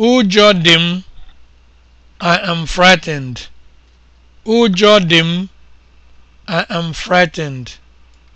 Ụjọ dị m. I am frightened. I am frightened.